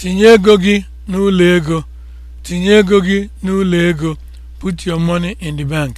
Tinye ego gị n'ụlọ ego. Tinye ego gị n'ụlọ ego. Put your money in the bank.